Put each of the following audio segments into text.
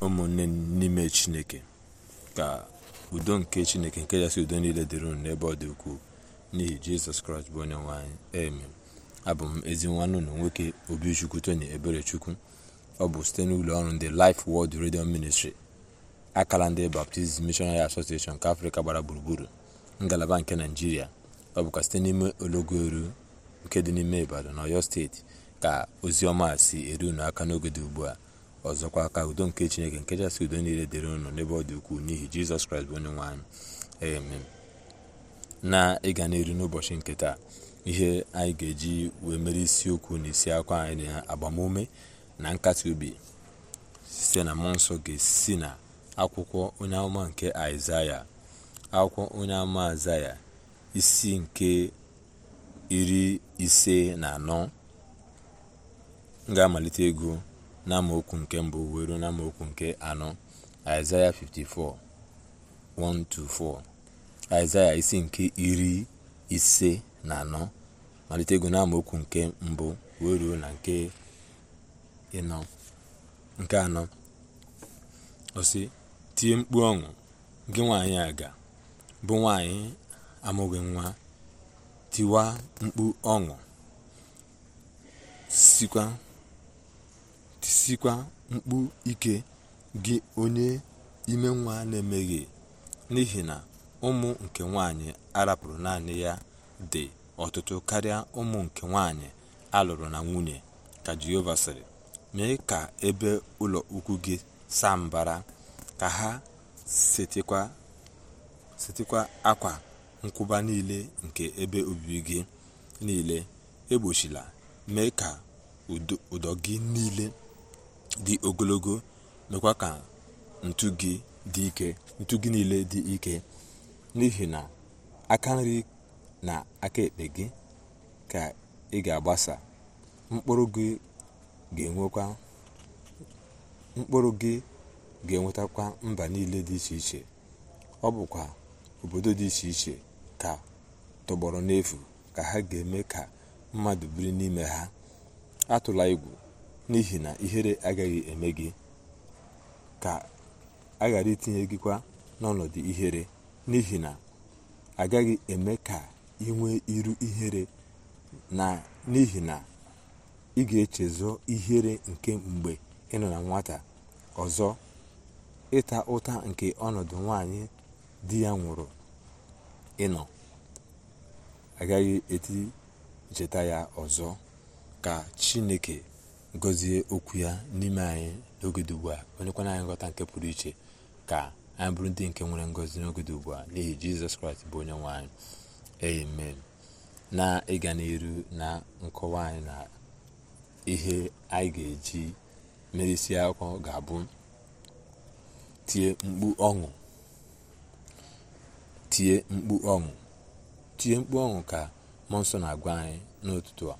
ụmụnne n'ime chineke ka udo nke chineke nke ya si udo niile dịrị unu n'ebe ọ dị ukwuu n'ihi jizọs kraịst bụ onye nwe anyị abụ m ezi nwanne ụlọ nwoke obichukwu tony eberechukwu ọ bụ site n'ụlọ ọrụ ndị Life world Radio Ministry akara ndị Baptist Missionary Association nke afrịka gbara gburugburu ngalaba nke naijiria ọ bụkwa site n'ime ologo eru nke dị n'ime ibadan na steeti ka ozi ọma si eru unu aka n'oge dị ugbu a ọzọkwa ka udo nke chineke nke jasị udo niile dịrị ụnụ n'ebe ọ dị ukwuu n'ihi jizọs kraịst bụ onye nwe anyị amen na ịga n'elu n'ụbọchị nke taa ihe anyị ga-eji wee mere isiokwu na isi akwa anyị na agbamume na nkasi obi site na mmụọ nsọ ga-esi na akwụkwọ onye amụma nke aịzaya akwụkwọ onye amụma aịzaya isi nke iri ise na anọ m ga-amalite ego n'amaokwu nke mbụ wee ruo n'amaokwu nke anọ aịzaya 54 1-4 aịzaya isi nke iri ise na anọ malite ego n'amaokwu nke mbụ wee ruo na nke ịnọ nke anọ ọsị tie mkpu ọṅụ gị nwaanyị aga bụ nwaanyị amụghị nwa tiwa mkpu ọṅụ sikwa sikwa mkpu ike gị onye ime nwa na-emeghe n'ihi na ụmụ nke nwanyị arapụrụ naanị ya dị ọtụtụ karịa ụmụ nke nwanyị alụrụ na nwunye ka jehova sịrị mee ka ebe ụlọ ukwu gị saa mbara ka ha setịkwa akwa nkwụba niile nke ebe obibi gị niile egbochila mee ka ụdọ gị niile dị ogologo mekwa ka ntu gị dị ike ntu gị niile dị ike n'ihi na aka nri na aka ekpe gị ka ị ga-agbasa mkpụrụ gị ga enwetakwa mba niile dị iche iche ọ bụkwa obodo dị iche iche ka tọgbọrọ n'efu ka ha ga-eme ka mmadụ biri n'ime ha atụla igwu. n'ihi na ihere agaghị eme gị ka a ghara itinye kwa n'ọnọdụ ihere n'ihi na agaghị eme ka ị iru ihere na n'ihi na ị ga-echezọ ihere nke mgbe ị nọ na nwata ọzọ ịta ụta nke ọnọdụ nwanyị di ya nwụrụ ịnọ agaghị eti cheta ya ọzọ ka chineke gọzie okwu ya n'ime anyị n'oge ugbu a onyekwana anyị nghọta nke pụrụ iche ka anyị bụrụ ndị nke nwere ngozi n'oge ugbu a n'ihi jizọs kraịst bụ onye nwe anyị amen na ịga n'iru na nkọwa anyị na ihe anyị ga-eji merisi akwụkwọ ga-abụ tie mkpu ọṅụ ka mmụọ nsọ na-agwa anyị n'ụtụtụ a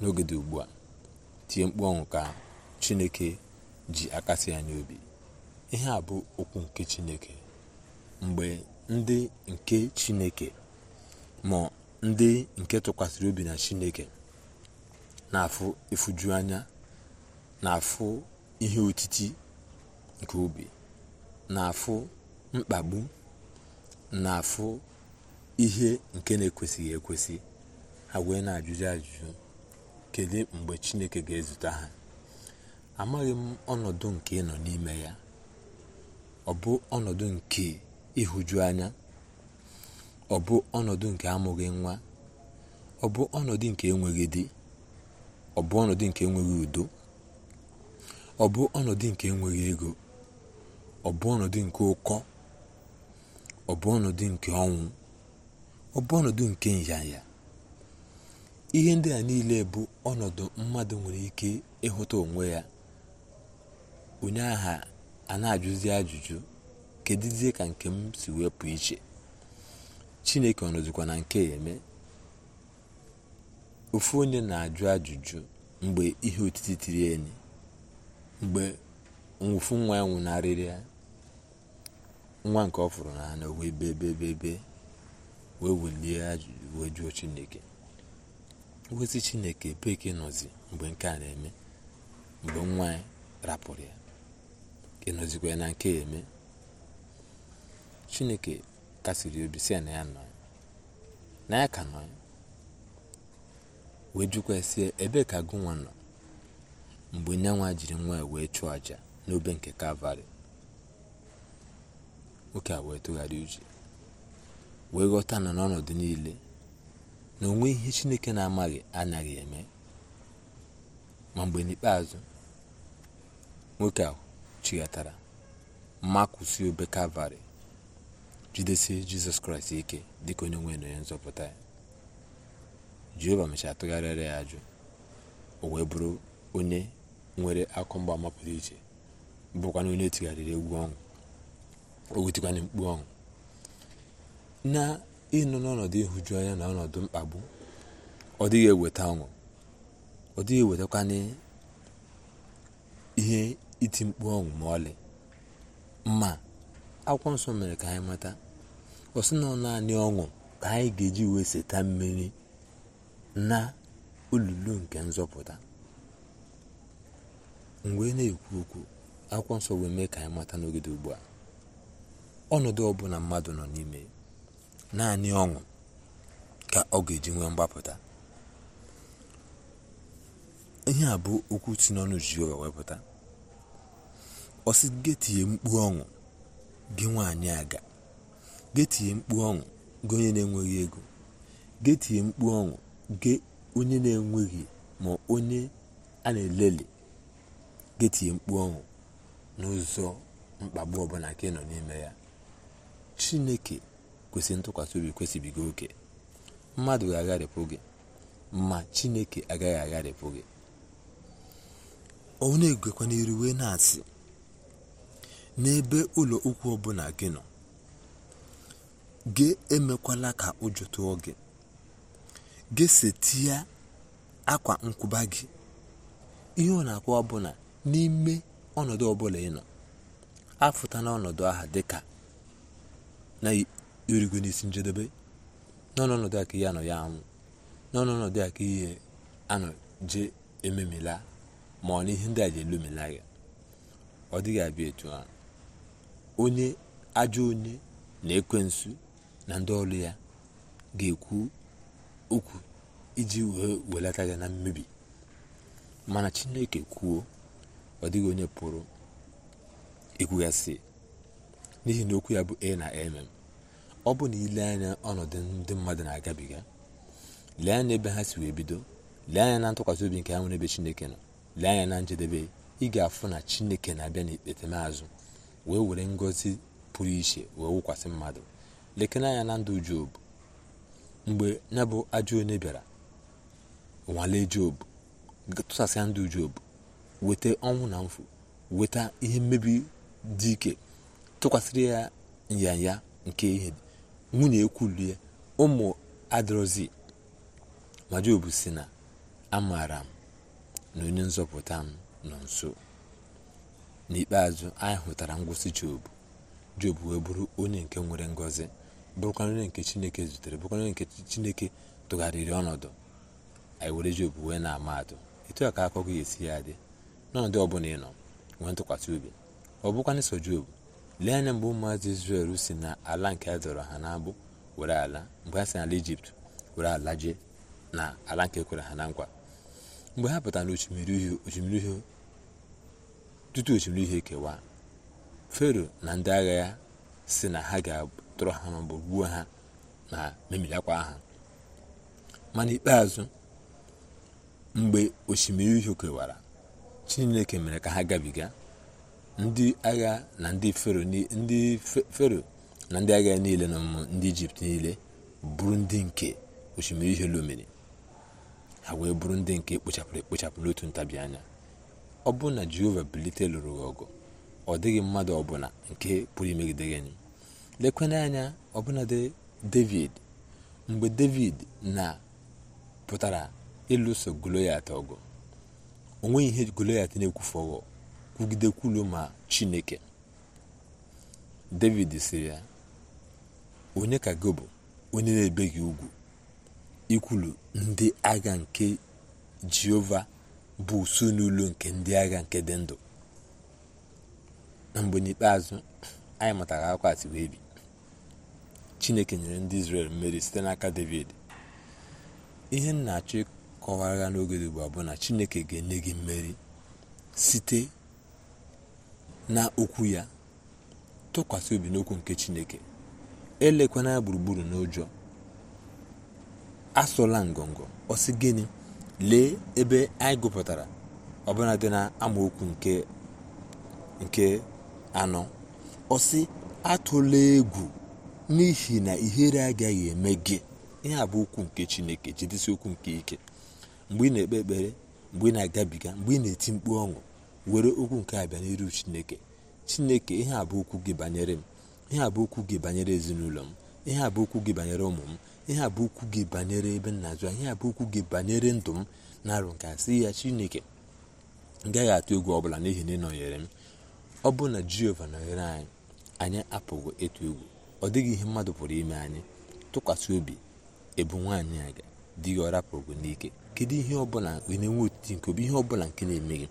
n'oge ugbu a tie mkpu ọnwụ ka chineke ji akasi anyị obi ihe a bụ okwu nke chineke mgbe ndị nke chineke ma ndị nke tụkwasịrị obi na chineke na-afụ ịfụju anya na-afụ ihe otiti nke obi na-afụ mkpagbu na-afụ ihe nke na-ekwesịghị ekwesị ha na ajụjụ ajụjụ Kedu mgbe chineke ga-ezute ha amaghị m ọnọdụ nke ịnọ nọ n'ime ya ọ bụ ọnọdụ nke ịhụju anya ọ bụ ọnọdụ nke amụghị nwa ọ bụ ọnọdụ nke enweghị di ọ bụ ọnọdụ nke enweghị udo ọ bụ ọnọdụ nke enweghị ego ọ bụ ọnọdụ nke ụkọ ọ bụ ọnọdụ nke ọnwụ ọ bụ ọnọdụ nke nyanya ihe ndị a niile bụ ọnọdụ mmadụ nwere ike ịhụta onwe ya onye agha a na-ajụzi ajụjụ kedụzie ka nke m si wepụ iche chineke ọnọdụkwa na nke eme ofu onye na-ajụ ajụjụ mgbe ihe otiti tiri enyi mgbe nwụfu nwa ya nwụnarịrị ya nwa nke ọ fụrụ n'anya na bebe wee welie ajụjụ wee jụọ chineke ngozi chineke beke nọzi mgbe nke a na-eme mgbe nwa ya rapụrụ ya ịnọzikwa ya na nke ya eme chineke kasiri obi si na ya nọ na ya ka nọ wee jụkwa sie ebe ka gụ nwa nọ mgbe nyanwa jiri nwa ya wee chụọ aja n'obe nke kalvarị nwoke a wee uche wee ghọta na n'ọnọdụ niile na onwe ihe chineke na-amaghị anaghị eme ma mgbe n'ikpeazụ nwoke a chighatara mma kwụsị obe kalvarị jidesie jizọs kraịst ike dịka onye nwe na onye nzọpụta ya jehova mechara ya ajụ o wee bụrụ onye nwere akụ mgbaama pụrụ iche na onye e tigharịrị egwu ọṅụ o wetikwana mkpu ọṅụ na nọ n'ọnọdụ ịhụju anya na ọnọdụ mkpagbu ọ dịghị eweta ọṅụ ọ dịghị ewetakwana ihe iti mkpu ọṅụ ma ọlị ma akwụkwọ nsọ mere ka anyị mata ọ sị na naanị ọṅụ ka anyị ga-eji wee seta mmiri na olulu nke nzọpụta mgbe na-ekwu okwu akwụkwọ nsọ wee mee ka anyị mata n'ogede ugbu a ọnọdụ ọbụla mmadụ nọ n'ime naanị ọṅụ ka ọ ga-eji nwee mgbapụta ihe a bụ okwu si n'ọnụ Jehova wepụta ọ sị getie mkpu ọṅụ gị nwaanyị aga getie mkpu ọṅụ gị onye na-enweghị ego getie mkpu ọṅụ gị onye na-enweghị ma onye a na-eleli getie mkpu ọṅụ n'ụzọ mkpagbu ọbụla ka ị nọ n'ime ya chineke kwesịrị ntụkwasị obi kwesịbigo oke mmadụ ga-agharịpụ gị ma chineke agaghị agharịpụ gị ọ na-egwekwa n'iru wee na-asị n'ebe ụlọ ụkwụ ọbụla gị nọ gị emekwala ka ụjọ tụọ gị gị setia akwa nkwụba gị ihe ọ na ọbụla n'ime ọnọdụ ọbụla ị nọ afụta n'ọnọdụ aha dịka irugo n'isi njedebe n'ọnọdụ a ihe anọ ya anwụ n'ọnọdụ a ihe anọ je ememila ma ọ na ihe ndị a ji elomela ya ọ dịghị abịa etu a onye ajọ onye na ekwensu na ndị ọrụ ya ga-ekwu okwu iji wee welata ya na mmebi mana chineke kwuo ọ dịghị onye pụrụ ekwugasị n'ihi na okwu ya bụ e na mm ọ bụ na ile anya ọnọdụ ndị mmadụ na-agabiga lee anya ebe ha si wee bido lee anya na ntụkwasị obi nke ha nwere ebe chineke nọ lee anya na njedebe ị ga-afụ na chineke na-abịa n'ikpetemazụ wee were ngozi pụrụ iche wee wụkwasị mmadụ lekene anya na ndụ job mgbe ya bụ ajọ onye bịara nwalee job tụsasịa ndụ Jobu, weta ọnwụ na mfụ weta ihe mmebi dị ike tụkwasịrị ya nyanya nke ihe nwunye ekwulie ụmụ adrozi ma jobu si na amaara m na onye nzọpụta m nọ nso n'ikpeazụ anyị hụtara ngwụsị jobu jobu wee bụrụ onye nke nwere ngozi bụrụkwa onye nke chineke zutere bụrụkwa onye nke chineke tụgharịrị ọnọdụ anyị were job wee na-ama atụ etu a ka akụkọ ya esi ya dị n'ọnọdụ ọbụla ị nọ nwee ntụkwasị obi ọ bụkwa n'iso jobu lee anya mgbe ụmụazị izrel si na ala nke a dọrọ ha n'agbụ were ala mgbe ha si n'ala ijipt were ala jee na ala nke kwere ha na nkwa mgbe ha pụtara na osimiri uhie osimiri tutu osimiri uhie kewaa fero na ndị agha ya si na ha ga-atụrụ ha maọbụ gbuo ha na memirakwa ha mana ikpeazụ mgbe osimiri uhie kewara chineke mere ka ha gabiga ndị agha na ndị fero na ndị agha niile na ndị ijipt niile bụrụ ndị nke osimiri ihe lomere ha wee bụrụ ndị nke kpochapụrụ ekpochapụ n'otu ntabi anya ọ bụ na jehova bilite lụrụ ọgụ ọ dịghị mmadụ ọbụla nke pụrụ imegide gị lekwena anya ọbụna david mgbe david na pụtara ịlụso goloyat ọgụ onweghị ihe goloyat na-ekwufe ọgụ kwugide ma chineke david sịrị ya onye ka gị bụ onye na-ebe gị ugwu ikwulu ndị agha nke jehova bụ usu n'ụlọ nke ndị agha nke dị ndụ na mgbe n'ikpeazụ anyị mụtara akwa ati wee bi chineke nyere ndị israel mmeri site n'aka david ihe m na-achọ ịkọwara n'oge dị ugbu bụ na chineke ga-enye gị mmeri site na okwu ya tụkwasị obi n'okwu nke chineke elekwana ya gburugburu n'ụjọ asụla ngọngọ ọsị gịnị lee ebe anyị gụpụtara ọbụla dị na amaokwu nke nke anọ ọsị atụla egwu n'ihi na ihere agaghị eme gị ihe a bụ okwu nke chineke jidesi okwu nke ike mgbe ị na-ekpe ekpere mgbe ị na-agabiga mgbe ị na-eti mkpu ọṅụ were okwu nke a bịa n'iru chineke chineke ihe a bụ okwu gị banyere m ihe a bụ okwu gị banyere ezinụlọ m ihe a bụ okwu gị banyere ụmụ m ihe a bụ okwu gị banyere ebe m na-azụ ihe a bụ okwu gị banyere ndụ m na-arụ nke a sị ya chineke ngaghị gaghị atụ egwu ọbụla n'ihi na ị m ọ bụ na jehova nọnyere anyị anyị apụghị ịtụ egwu ọ dịghị ihe mmadụ pụrụ ime anyị tụkwasị obi ebu nwaanyị a dị gị ọrapụrụ n'ike kedu ihe ọbụla na-enwe otiti nke obi ihe ọbụla nke na-eme gị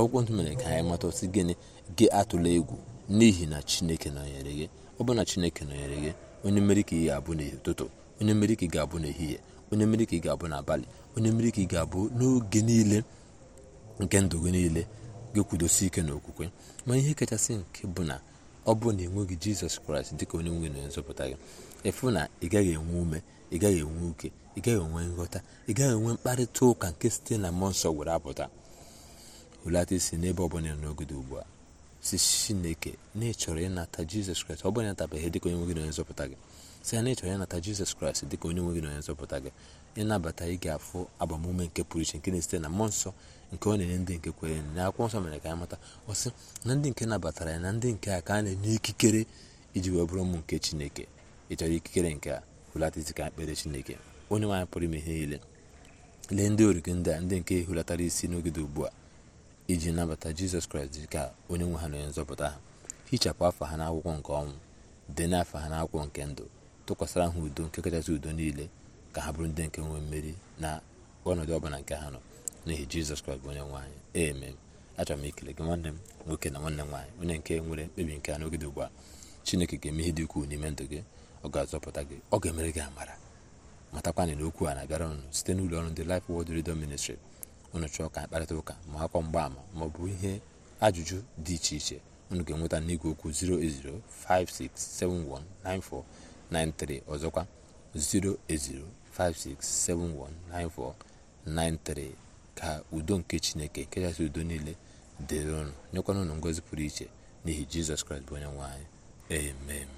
akwụkwọ ntụ mere ka anyị mata osi gịnị gị atụla egwu n'ihi na chineke nọnyere gị ọ bụ na chineke nọnyere gị onye mmeri ka ị ga-abụ n'ụtụtụ onye mmeri ka ị ga-abụ n'ehihie onye mmeri ka ị ga-abụ n'abalị onye mmeri ka ị ga-abụ n'oge niile nke ndụ gị niile gị kwudosi ike n'okwukwe ma ihe kachasị nke bụ na ọ bụ na enweghị jizọs kraịst dịka onye nwe na nzọpụta gị ịfụ na ị gaghị enwe ume ị gaghị enwe uke ị gaghị enwe nghọta ị gaghị enwe mkparịta ụka nke site na mmụọ nsọ apụta hulata isi n'ebe ọbụla n'ogodo ugbu a si chineke na ịchọrọ ịnata jizọs kraịst ọ bụla ịnatabeghị dịka onye nwe gị na onye nzọpụta gị si ya na ịchọrọ ịnata jizọs kraịst dịka onye nwe na onye nzọpụta gị ịnabata ị ga-afụ agbamume nke pụrụ iche nke na-esite na mmụọ nsọ nke ọ na-enye ndị nke kwere na akwụkwọ nsọ mere ka ya mata ọ sị na ndị nke nabatara ya na ndị nke a ka a na-enye ikikere iji wee bụrụ ụmụ nke chineke ịchọrọ ikikere nke a hulata isi ka ekpere chineke onye nwaanyị pụrụ ime ihe niile lee ndị origi ndị a ndị nke hulatara isi n'ogide ugbu a iji nabata jizọs kraịst dị ka onye nwe ha na onye nzọpụta ha hichapụ afọ ha n'akwụkwọ nke ọnwụ dị n'afọ ha n'akwụkwọ nke ndụ tụkwasịra ha udo nke kachasị udo niile ka ha bụrụ ndị nke nwee mmeri na ọnọdụ ọbụla nke ha nọ n'ihi jizọs kraịst bụ onye nwe anyị amen achọrọ m ikele gị nwanne m nwoke na nwanne m nwaanyị onye nke nwere mkpebi nke n'oge dị ugbu a chineke ga-eme ihe dị ukwuu n'ime ndụ gị ọ ga-azọpụta gị ọ ga-emere gị amara matakwana na okwu a na-abịara ọnụ site n'ụlọ ọrụ ndị Life Word Radio Ministry unu chọọ ka ụka ma akwa mgbaama ma ọ bụ ihe ajụjụ dị iche iche unu ga-enweta n'igwe okwu 08056719493 ọzọkwa 08056719493 ka udo nke chineke nke kachasị udo niile dịrị ụnụ nyekwana unu ngọzi pụrụ iche n'ihi jizọs kraịst bụ onye nwe anyị